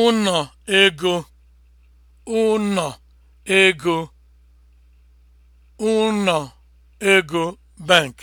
ụnọ ego ụnọ ego ụnọ ego bank